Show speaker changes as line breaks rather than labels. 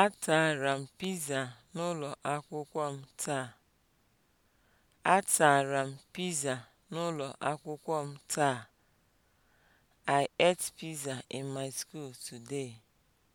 Atara m piza n'ụlọ akwụkwọ m taa. Atara m piza n'ụlọ akwụkwọ m taa. I ate pizza in my school today.